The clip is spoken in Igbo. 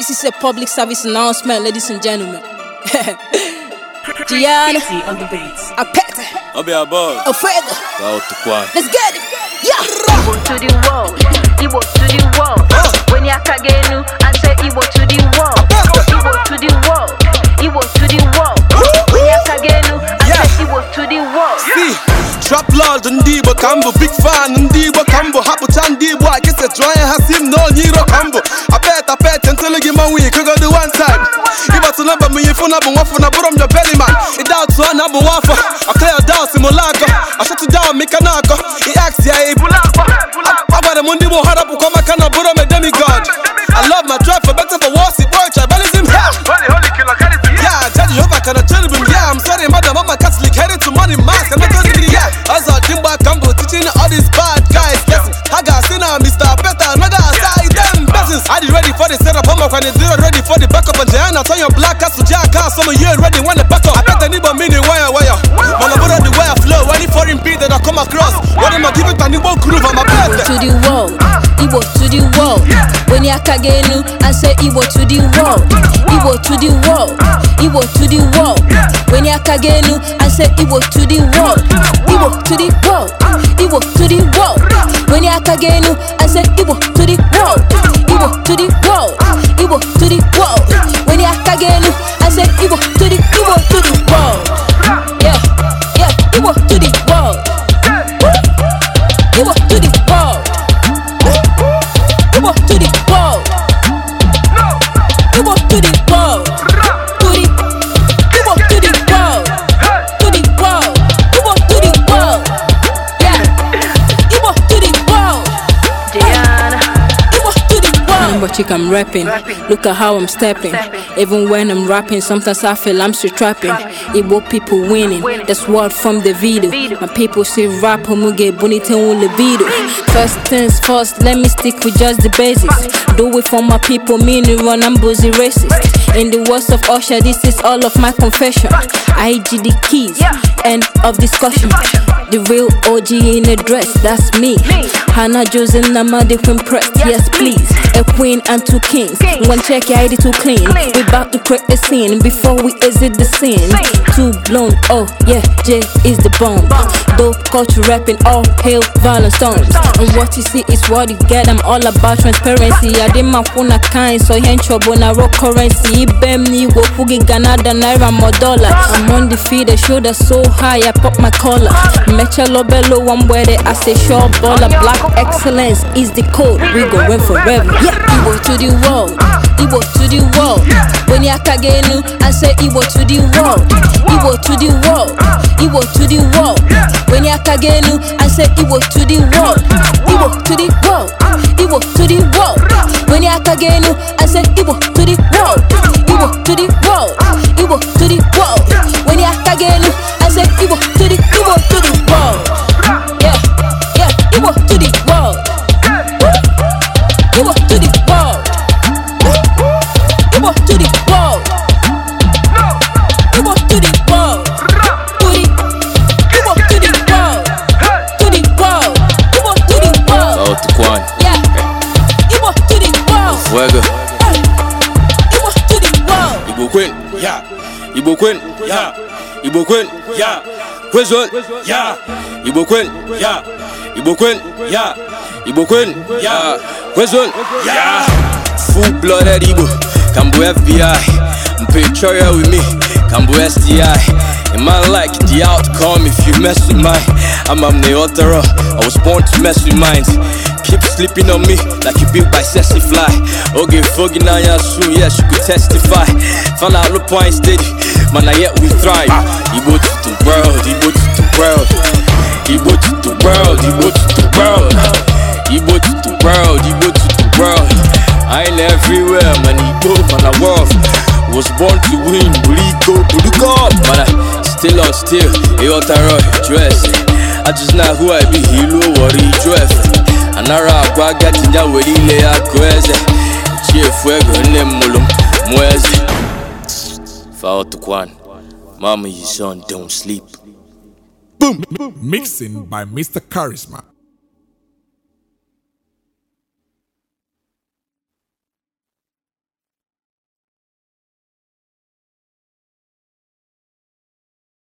This is a public service announcement, ladies and gentlemen. Gianna on the beats. A pet. be above. A feather. Let's get it. Yeah. Igbo to the world. Igbo to the world. When you kagenu, I say Igbo to the world. Igbo to the world. Igbo to the world. When you kagenu, I say Igbo to the world. See. Trap lord ndị Igbo ka big fan ndị Igbo ka mbụ hapụcha ndị Igbo a kịsị jụọ anya ha si m na onye iro na bụ nwafọ na bụrụ m yo beliman ide atụ ọ na abụ nwafọ ọkaya da simụla akọ ọchụtụ da mika na ya ebula akwa m ndị igbo ha rapụkwa maka na bụrụ m e demigod I love my tribe for better for worse, it works, tribalism yeah. yeah, Judge I cherubim, yeah I'm sorry mother mama a Catholic, headed to money mask, I'm not telling you, yeah Jimba Kambo teaching all these bad guys Mr. another side, them ready for the setup, I'm ready for the backup And turn your black Now some of you already wanna pack up. I bet the neighbor mean the wire wire. Man, I borrow the wire flow. Any foreign beat that I come across. What am I giving to groove? To the world, Igbo to the world. When you elu, I say Igbo to the world. Igbo to the world, Igbo to the world. When you elu, I say Igbo to the world. Igbo to the world, Igbo to the world. When you I Igbo to the world. Igbo to the world. hot chick I'm rapping. Look at how I'm stepping. Even when I'm rapping, sometimes I feel I'm still trapping. Igbo people winning, that's what from the video. My people say rap, muge bonita un libido. First things first, let me stick with just the basics. Do it for my people, meaning run, I'm busy racist. In the words of Usher, this is all of my confession. IG the keys, end of discussion. The real OG in a dress, that's me. Hannah Joseph Namadi press yes please. a queen and two kings. King. One check your ID too clean. clean. We bout to create a scene before we exit the scene. Too blown, oh yeah, Jay is the bomb. bomb. Dope culture rapping, all hail violent storms. And what you see is what you get. I'm all about transparency. I did my phone kind, so you ain't trouble na rock currency. Ibem ni wo fugi Ghana da naira more dollar. I'm on the feet, show that so high, I pop my collar. Mecha lobelo, I'm where they I say sure baller. Black excellence is the code. We going forever. Yeah. Igbo to the world, Igbo to the world. When you aka I say Igbo to the world, Igbo to the world, Igbo to the world. When you aka I say Igbo to the world, Igbo to the world, Igbo to the world. When you aka I say Igbo to the Igbo queen ya Igbo kwel ya Igbo kwel ya Igbo kwel ya Igbo ya ya full blooded Igbo FBI with me Kambu SDI a man like the outcome if you mess with mine. I'm, na the author, I was born to mess with minds. Keep sleeping on me like you built by sexy fly. Okay, foggy now, yeah, soon, yes, you could testify. Found out point mana yet we thrive Igbo to the Igbo to the Igbo to the Igbo to the Igbo to the world, Igbo to the world I everywhere, man, Igbo, man, I Was born to win, Buliko, Buluko, man, I still on still, Eyotaro, dress I just know who I be, Hilo, Wari, dress Anara, If to Kwan, Mama, your son don't sleep. Boom! Mixing by Mr. Charisma.